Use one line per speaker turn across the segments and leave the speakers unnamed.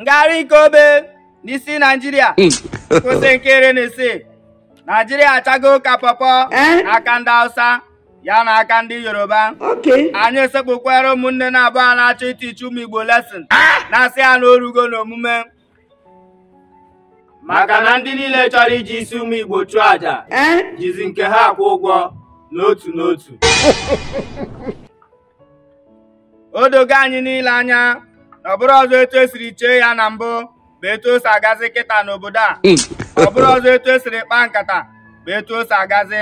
ngagharị nke obe n'isi naijiria hmm. kwụsị nke iri na isii naijiria achago ụka pọpọ eh? n'aka ndị hausa ya na aka ndị yoruba anyị sekpukwara ụmụnne na-abụọ a na-achọ itichi ụmụ igbo lesin eh? na-asị ha na orugo n'omume maka na ndị niile chọrọ iji isi ụmụ igbo chụọ aja eh? jizi nke ha akwụ ụgwọ n'otu n'otu o dogo anyị niile anya ọ bụrụ ọzọ etu esiri chee ya na mbụ bụ etu o si agazi kịta n'obodo a hmm. ọ bụrụ ọzọ etu esiri kpaa nkata bụ etu o si agazi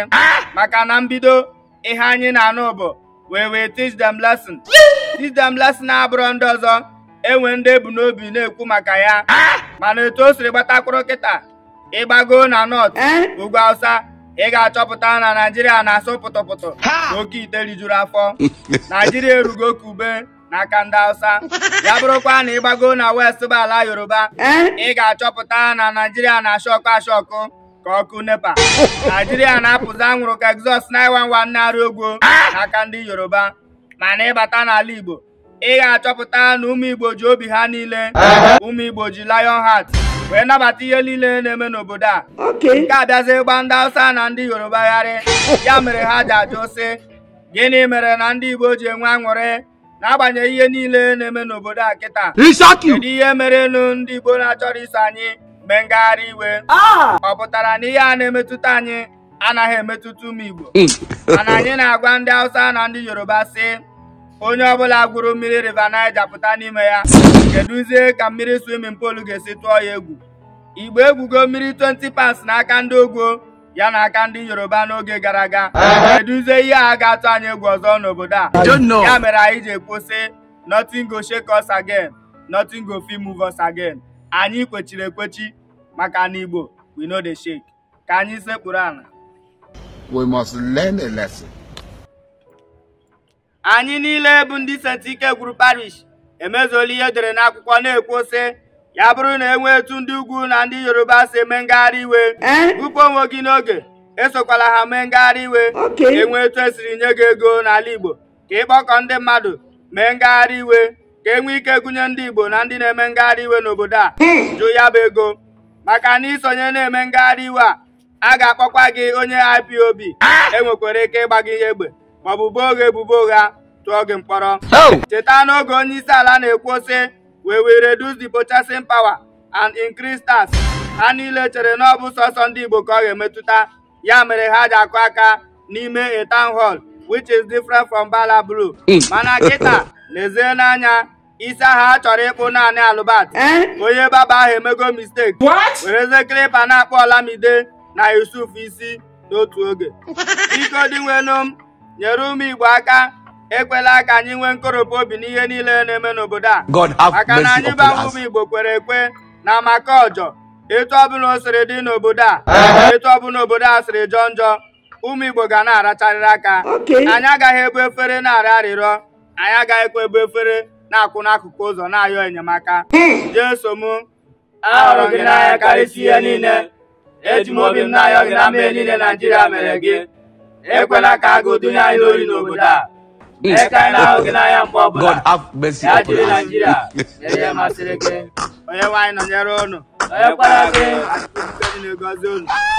maka na mbido ihe anyị na-anụ bụ wee wee teach them lesson teach them lesson abụrụ ndị ọzọ enwe ndị ebu n'obi na-ekwu maka ya mana etu o siri gbatakwuru kịta ịgbago na nọt eh? ugwu awụsa ị ga-achọpụta na naijiria na-asụ pụtụpụtụ na oke ite rijuru afọ naijiria erugo ka ube n'aka ndị Hausa ya bụrụkwa na ịgbago na west bụ ala Yoruba eh? ị ga-achọpụta na Naijiria na-ashọkụ ọkụ. ka ọkụ nepa Naijiria na-apụzi anwụrụ ka exhaust 911 na-arị ogwo n'aka ndị Yoruba mana ịbata n'ala Igbo ị ga-achọpụta na ụmụ Igbo ji obi ha niile eh? ụmụ Igbo ji lion wee nabata ihe niile na-eme n'obodo a nke a abịazi gba ndị Hausa na ndị Yoruba gharị ya mere ha ji ajụ si gịnị mere na ndị Igbo ji enwe aṅụrị n'agbanyeghị ihe niile na-eme n'obodo a kịta kedu ihe merenụ ndị Igbo na-achọrọ iso anyị mee ngagharị iwe ah! ọ pụtara na ihe a na-emetụta anyị anaghị emetụta ụmụ Igbo hmm. mana anyị na-agwa ndị Hausa na ndị Yoruba sị onye ọbụla gwuru mmiri River Niger pụta n'ime ya kedụzie ka mmiri swimin polu ga-esi tụọ ya egwu Igbo egwugo mmiri 20 pas n'aka ndị ogwo ya na aka ndị yoruba n'oge gara aga eduzie ihe a ga-atụ anyị egwu ọzọ n'obodo a ya mere anyị ji kwụsị nothing go shake us again nothing go fit move us again anyị kpechiri ekwechi maka na igbo we no dey shake ka anyị sekpuru ala we must learn a lesson. anyị niile bụ ndị sentike gwuru parish emezuola ihe dere n'akwụkwọ na-ekwu ya bụrụ na enwee etu ndị ugwu na ndị yoruba si eme ngagharị iwe bupụ eh? onwe gị n'oge esokwala ha mee ngagharị iwe enwee etu esiri nye gị ego n'ala igbo ka ịkpọkọ ndị mmadụ mee ngagharị iwe ka e nwee ike gụnye ndị igbo na ndị na-eme ngagharị iwe n'obodo a hmm. jụ ya bụ ego maka na isonye na-eme ngagharị iwe a a ga-akpọkwa gị onye IPOB enwekwara ike ịgba gị ihe egbe maọbụ boo oghe ebubo ụgha tụọ gị mkpọrọ oh! cheta n'oge onye isi ala na-ekwu sị we will reduce the purchasing power and increase tax ha niile chere na ọ bụ sọsọ ndị Igbo ka ọ ga-emetụta ya mere ha ji akụ aka n'ime a town hall which is different from Bala Blue hmm. mana kịta lezie n'anya isi aha chọrọ ịkpụ naanị alụbat eh? onye baba ahụ emego mistake wereze klipa na-akpọ Olamide na Yusuf isi n'otu oge biko dịnwenu nyere ụmụ Igbo aka ekwela ka anyị nwee nkoropụ obi n'ihe niile na-eme n'obodo a maka na anyị bụ ụmụ Igbo kwere ekwe na maka ọjọ etu ọbụla o siri dị n'obodo a etu ọbụla obodo a siri jọọ njọ ụmụ Igbo ga na-aracharịrị aka anyị agaghị ebu efere na arị arịrịọ anyị agaghị agaghịkwa ebu efere na-akwụ n'akụkụ ụzọ na-ayọ enyemaka hmm. Jeso m
ahụrụ gị n'anya karịsịa ihe niile
eji m obi m na-ayọ gị na mmehie niile Naijiria mere gị ekwela ka agụụ dunye anyị n'obodo a God have mercy upon us.